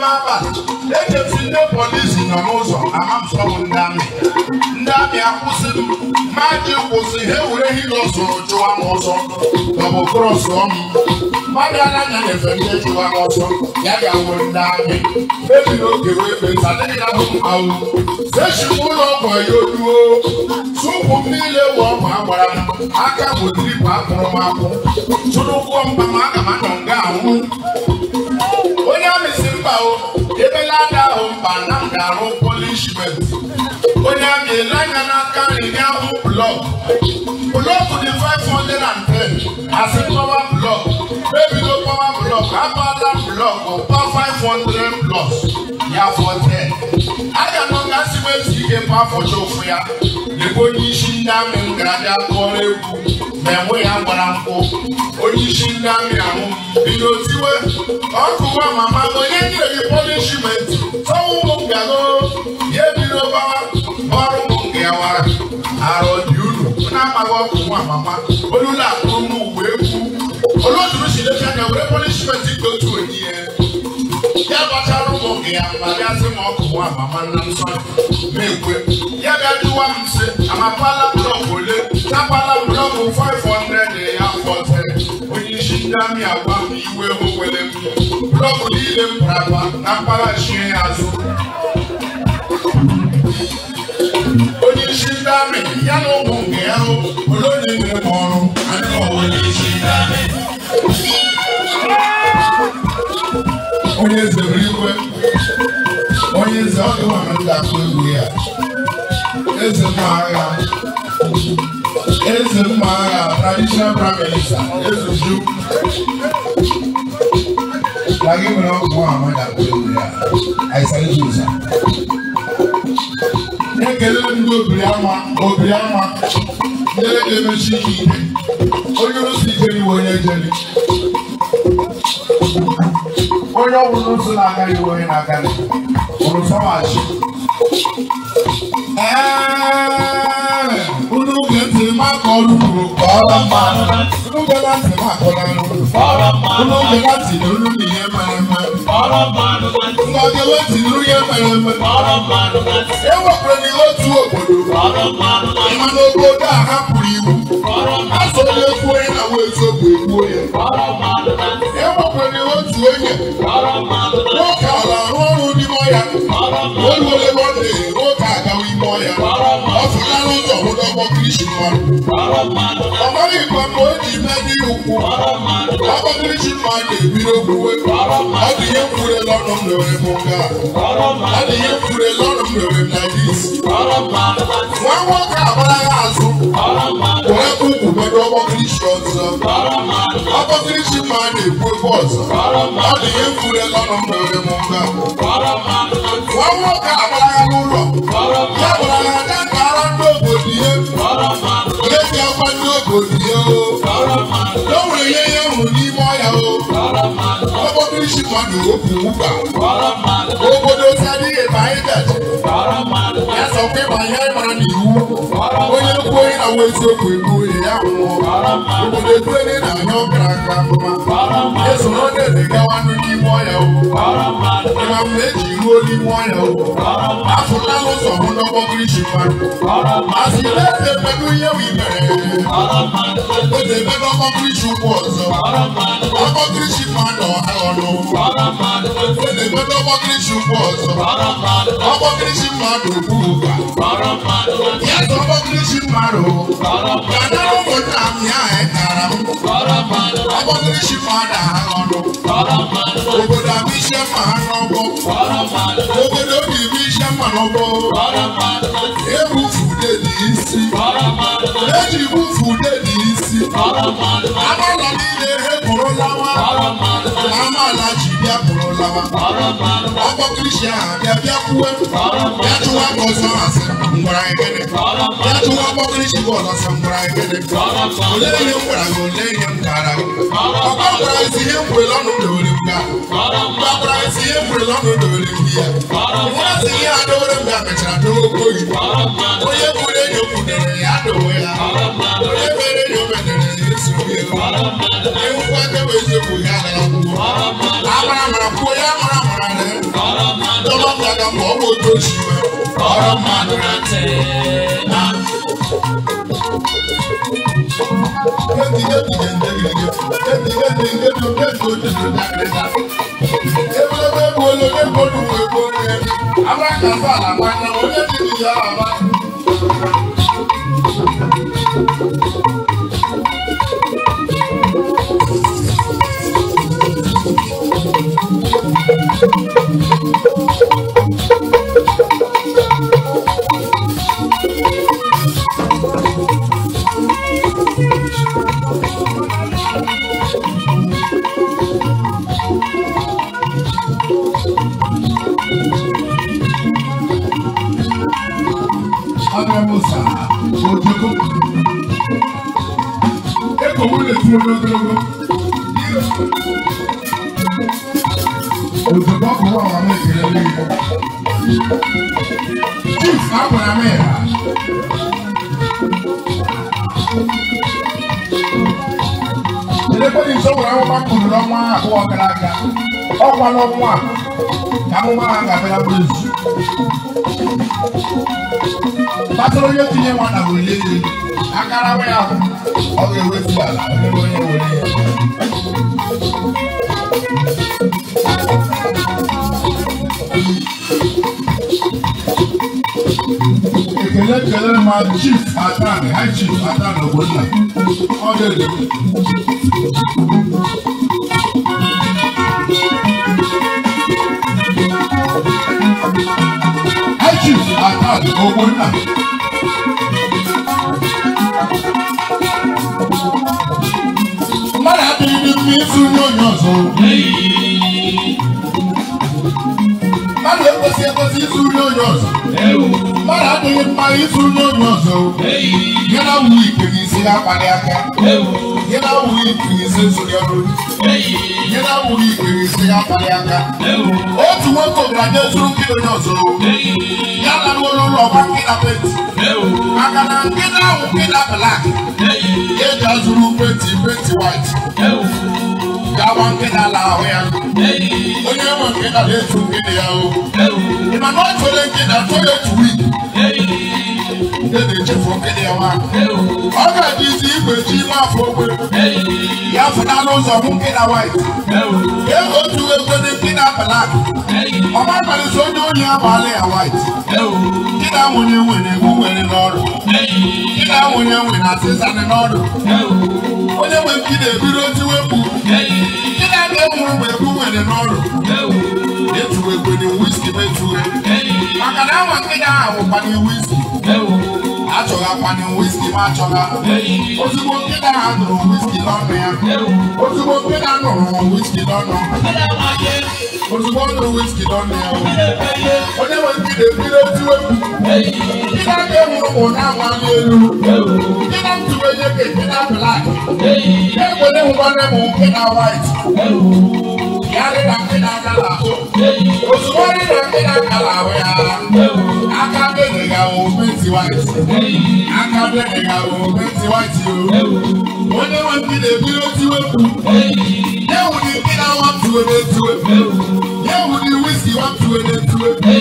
n'ime abalị ejezi ndị polisi nọ n'ụzọ amamsọ m ndị amị ndị amị akwụsị m ma ji kwụsị ha ewere hilo soro chụwa m ọsọ maọbụ krọsọ m mmadụ anaghị anyefe ndị chụwa m ọsọ ya ga-awụ ndị amị ebiri oge wee kpesa adịghị na bụ mmanwụ sechikwa ụlọ ọgwụ ya oduo tupu m niile wụ ọgwụ agbara m aka bụ tripu akpụrụ m akwụ tụrụ ụgwọ mba ma aga m anọ nga anwụ mba o ebelada o mba na m ga-arụ polishment onye amị ele anya n'aka nri nye ahụ blọk blọk dị 510 asị pọwa blọk mebido pọwa blọk abala blọk pa 500 blọk ya fọ 10 aga m ga-asị wezi okepa afọchọfu ya lekwa onye isi ndị amị m gara bịa kọrọ egwu ma enwe ya gbara nkwụ onye isi ndị amị ahụ bido tiwe ọkụwa mama na onye nyere gị pọnishimenti tọwụ ụmụ ngano ya ebido gbawa ọrụ ụmụ nke ya wara arọ dị uru na-amaghị ọkụ nwa mama olula akụrụ n'ugbo egwu oloduru si lecha na were pọnishimenti dị otu onye yɛbɛtare mo ɛyamade ase ma ɔkɔmɔ amama amapala blɔk ole tapala blɔk 500 ɛyɛ afɔtɛ onyihyindame agwa m iwe howele m blɔk niile m praba na mpala hyie ya so onyihyindame ya na ụmụ nke ya hụ olonye na-eme ọrụ onye eze buru iwe onye eze ọ dịwa na ndị atụ egwu ya eze mma agha eze mma agha traditional prime minister eze ju na gị nwere ọgwụ ahụ na atụ egwu ya aịsara jụza ekele ndị obiri ama obiri ama ndị na-emechi ike onye rụsi ike iwe onye jeli onye ọbụla otu na-aga iwu onye na-aga ụrụ fọmachi unu ge ntị maka ọrụ uru ọrụ mma unu ge na ntị maka ọrụ unu ge na ntị nuru na ihe mere eme unu ge na ntị nuru ihe mere eme ewepụrụ e n'ihe otu obodo ịma n'obodo a hapụrụ iwu ha so onye a na wo etuo bu ebuo yɛ. Ɛmɔkpɔ ni wo tuo yɛ. Wọ́ọ̀kà ọ̀la ọ̀rọ̀ ní mọ́ ya. Olùwọlé bọ́dé wọ́ọ̀kà àgàwé mọ́ ya. Ọ̀fun lánàá tó ọ̀hún dọ́gbọ́ kìrìsì mọ́. Ọ̀bá yìí kan kò jì mẹ́ni òkú. Ọ̀bá kìrìsì máa ń èbí lókùwé. Adìyẹ kúrẹ́ lọ́rùn lórí Bùkà. Adìyẹ kúrẹ́ lọ́rùn lórí Nàìjíríà. Wọ́n wọ́ọ̀kà àbáyá àzú. rich man dey propose ọ dị ihe mfure ọnụ mgbe oge m mba nwa nwoke agbara n'ụlọ ya gwara ya ada kara ndị obodo ihe na-eji akwa ndị obodo ihe o o nwere ihe ya hụrụ n'ime ọhịa o isi mmadụ opu ụba obodo ozi adịghị ebe anyị gaji ya sọkwa ịma ihe anyị mara n'iwu onye kwu onye na-nwe eziokwu egbu onye ya nwụọ obodo eduele na-anya ọkara aka mma esoro dere gawanụ n'ime ọya ịma mgbe eji ruo n'ime ọya afụla n'ụzọ hụ n'ọgbọgirichi mmadụ masị na-eze mmadụ ihe bụ imere otu ebe n'ọgbọgirichi ụkwụ ọzọ mokrishi mmadụ aghọrọ onye nweta ọmọkrishi ukwu ọzọ ọmọkrishi mmadụ ukwu ụba ya na ọmọkrishi mmadụ gadara ụmụnna m ya ekara m ọmọkrishi mmadụ aghọrọ obodo abụ isi mma ha n'ọgbọ obodo obi bụ isi mma n'ọgbọ ebufu ude dị isi eji bufu ude dị isi anụ ụlọ abịa pụrụ lawa ọgbọkirisi ahụ abịa bịa kwuwe bịa chụwa ka ọsọ asị ngwara ekele bịa chụwa ọgbọkirisi bọọlụ ọsọ ngwara ekele ole ihe m gwara gị ole ihe m gara gị ọkwa gwara ezi ihe mkwere ọnụ dowere m ga ya nwa ezi ihe adowere m ga mechara dowe oyi ya adowe ya onye kwere enyo ya esoghi ya ewu kwa kewe eziokwu amara bụye amara mara na dọlọtara ma ọ bụ otu osimiri ọrụ mmadụ na ntị na Ebelebe bụ onye onye mmadụ nwe ego onye amara ka mba na-agbanye onye dị ya ama olùdókòwò kò wà wàmú ìpínlẹ̀ lórí mọ́. chief agbọ̀nà mẹ́ra. ìdẹ́kọ̀ ní sọ́wọ́n àwọn ọmọ akọ̀rọ̀ lọ́mọ àkọ́wọ́ ọ̀kadà ká ọ̀pọ̀ lọ́mọ à kàmú máa ń gàfẹ́ lábúlé zu. pàtó lóye ti yẹ wọn àbò lé lé akarawe ahụ ọ ga-ewefu ala Chairman Chief Atan High Chief Atan Ogbonna ọ̀dẹ̀dẹ̀. High Chief Atan Ogbonna. Mmadụ adịghị n'ime ịsụ onye onye ọzọ. Mmadụ ekwesị ekwesị ịsụ onye onye ọzọ. mmadụ adịghị mma ịtụ n'onye ọzọ ya na wụ ike gị isi na-akpali aka ya na wụ ike gị isi ọrụ ya na wụ ike gị isi na-akpali aka otu nwoke obodo ezuru nke onye ọzọ ya na n'ụlọ ụlọ ọgba nke na penti maka na nke na-awụ nke na blak eji e azụrụ penti penti wait gawa nke na-ala ahụ ya onye nwe nke na-ala etu nkịta ya o ị ma na ọ chọrọ nkịta chọrọ etu wiki ndị na-echefu nkịta ya nwa ọ ga-adị isi igwe ji ime afọ ogbe ya fụnala n'ụzọ mụ nkịta wait ee otu egwe dị nkịta balak ọma kparịta onye oyi amaala ya wait nkịta nwunye nwere egwu nwere n'ọrụ nkịta nwunye nwere asịsanị n'ọrụ onye nwe nkịta ebido tiwepụ ndị na-aga mụrụ mgbe ebu nwere n'ọrụ etuwe egbe na wiski metuwe maka na awa nkịta ahụ wụkwanye wiski achọghakwana wiski ma achọgha ozugbo nkịta ahụ nụrụ wiski n'ọnụ ya ozugbo nkịta nụrụ wiski n'ọnụ mo ti wọ́n lu wíṣkì lọ́nà ẹ̀ o. mo ní wọ́n ti dèbí lójú ewu. kí náà dé mu kò náà wá ní elu. kí náà ti wé yékè kí náà black. kí náà mo ní mo bá ní mo kí náà white yàrá ìdàgbé náà kàlà kó òṣùwọ́n ní ìdàgbé náà kàlà wẹ̀ ara aka bẹ̀rẹ̀ ga wo pẹ́ntì wáìtì aka bẹ̀rẹ̀ ga wo pẹ́ntì wáìtì o wọ́n ní wọ́n ti lè bí ó ti wé kú yẹ́wù ni bí náà wọ́n tu wé tu wé yẹ́wù ni wíṣì wọ́n tu wé tu wé bí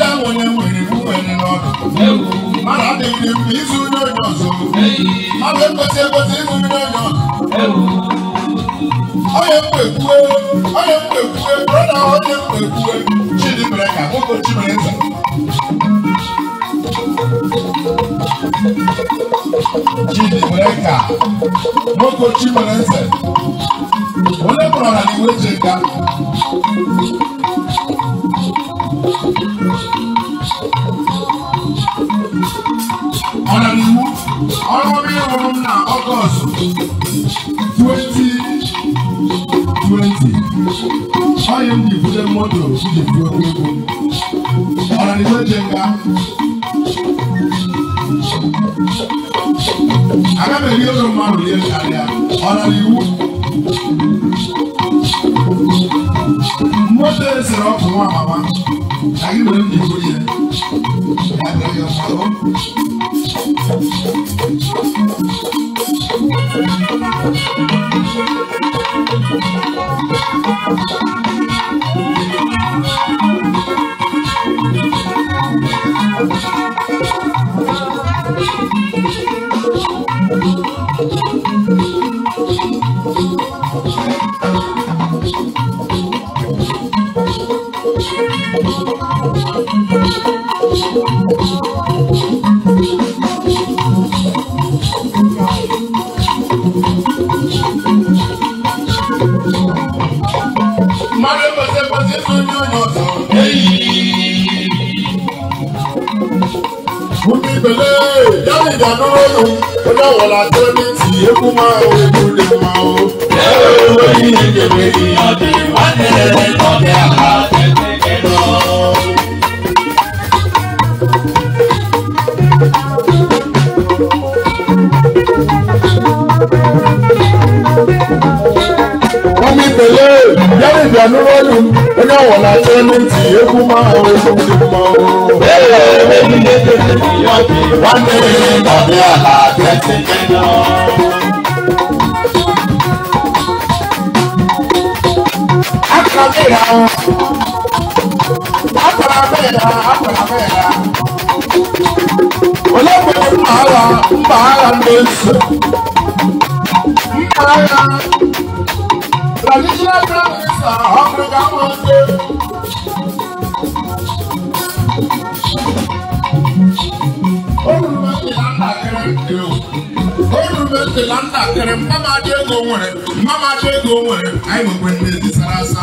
náà wọ́n ní wọ́n ní fún wẹ́n ní lọ́dọ̀ mara de mi su n'oyọ so. Ọlọ́pẹ̀ ṣe kò sí ìlú onye mkpegbue onye brọda onye mkpegbue Chidimereka nwoke Chimereze Chidimereka nwoke Chimereze onye mụrụ ọrụ ọrụ ịhụrụ m na Ọgọst 20 twenty imd fúnjẹ mọ́tò síjì fún ọgbẹ́gbọ́ ọ̀rọ̀ ni tó jẹ ká. akábẹ̀rẹ̀ yóò sọ máa lòlẹ́ ṣàlẹ́ ọ̀rọ̀ ni wú. mọ́tò ẹsẹ̀rẹ̀ ọkùnrin wà màmá ṣàkíyèsí ní ìfúnjẹ ẹ̀ẹ́dẹ̀rẹ̀ yọ̀ sọ̀rọ̀. nìkan dúró nù ó dáwọ̀ la tó ní tì í kú mọ́ ewu lè mọ́ o. ẹ̀rọ ìwé yìí ni kèmí ìyàn bí wọ́n ní ẹ̀rẹ́ lọ́dẹ̀ àbáfẹ́ kékeré lọ. wọ́n mi pẹ̀lẹ́ yẹ́nì onye ọwụla aka elu ntị egwu mmanwụ egwu ndị mmanwụ nwanne m na-abịa ala abịa tinye aka m ya akwara m ya akwara m ya onye kwere mma agha mba agha ndị nsọ mma agha traditional Mr. Africa Wednesday. olùmẹ̀sì la ń dàkẹrẹ mmama adé ego nwere mmama adé ego nwere anyị nwekwe ndị ezi sara asa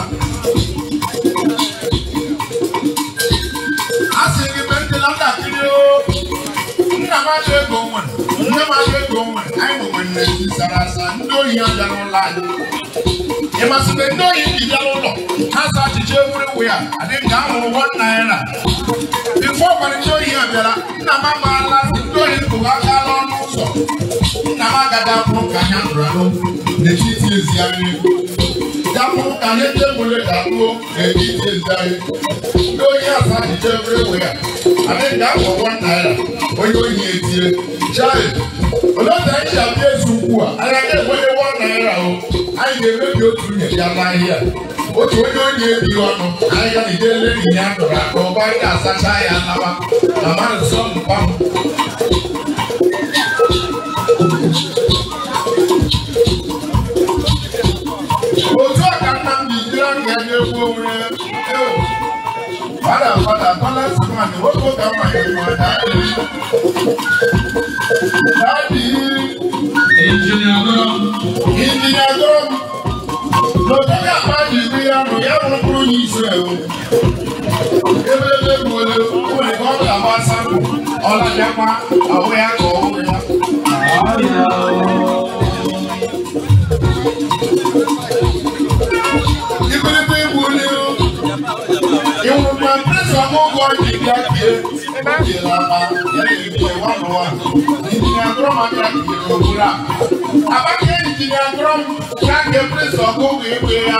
a sị gị mẹsì la ń dàkịrị o nna m adé ego nwere nne m You must be knowing the yellow law. Cancer chiche everywhere. I think down on one naira. Before when you here, Bella, Nama Mala, Tori Kuaka Lon Muso. Nama Gada from Puka Yandrano. The cheese is Yami. Dapo Kane Temule Dapo, the cheese is here. Yami. No yasa chiche everywhere. I think down on one naira. When you hear it, child. A Olóòtú ayé ìyàwó Jésù kú à, àyàkẹ́ ìwé ni wọ́n náírà naira. Oh anyị ga-emebi otu nwunye ya n'ahịa otu onye onye ebighị ọnụ ahịa na ide ele nyi ya dọrọ aka ọgbarị asacha ya nawa na mmadụ sọ mpa otu a ka nna m ji jiri aka ya na-egwu onwe fada fada fada sị ma na nwoke ụka mmanya ma n'otega mmadụ ibu ya nụ ya bụrụ onye Izrel ebelebe gbole nwere ka ọ ga-agbasa ọ na-abịakwa ahụ ya ka ọ hụrụ jelapa yɛrɛ yɛrɛ wa nɔ wa engineer dɔrɔn ma kɛra kile wura a b'a kɛ engineer dɔrɔn k'a kɛ pere sɔn ko k'e k'e ya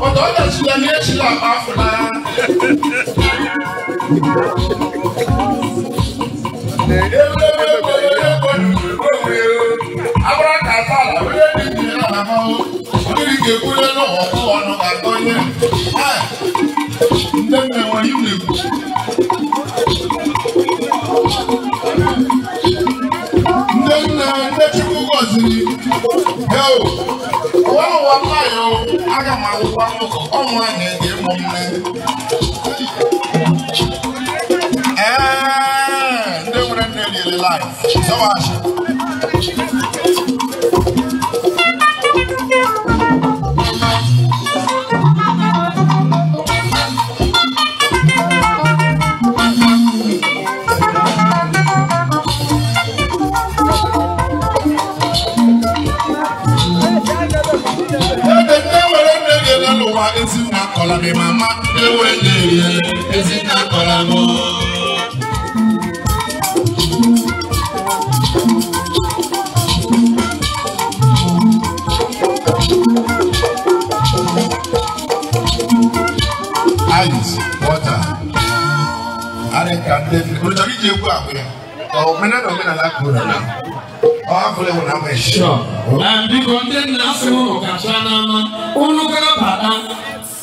o tɔ tɛ si la n'i ye si la a b'a fila. abura ka fa la o ye engineer la ma o o yiri kekule n'o ko wa n'o ka tɔ ye ɛ n tɛ mɛ wa yi wuli. Ndị nna ndị Chukwu gọziri heo ụwa ụwa nwanyị aga m agwụkwa mụkọ ọnwụ a na-ege mụ nne ee ndị nwere nne liri laif sọwachi akọla mi mama ewu ejerie ezita akọla m ice water arịka ndị ọ chọrọ iji egwu akụ ya omenala omenala kụrụ ala ọhafụlewu na ama eshi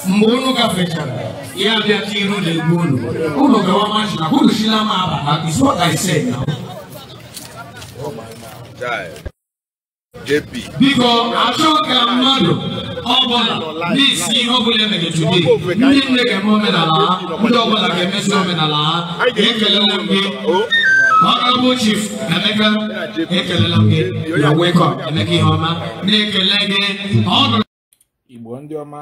mgbe unu gafechara ya bịa ka iru na-egbu unu unu gawa mashina unu shila m aba ha is what I biko achọ ka mmadụ ọbụla na-esi ihe ọbụla emegachudi ndị nne ga-eme omenala ha ndị ọbụla ga-emesi omenala ha ekelele m gị ọkabụ chief emeka ekelela m gị na wekọ emeka ihe ọma na-ekele gị ọdụ igbo ndị ọma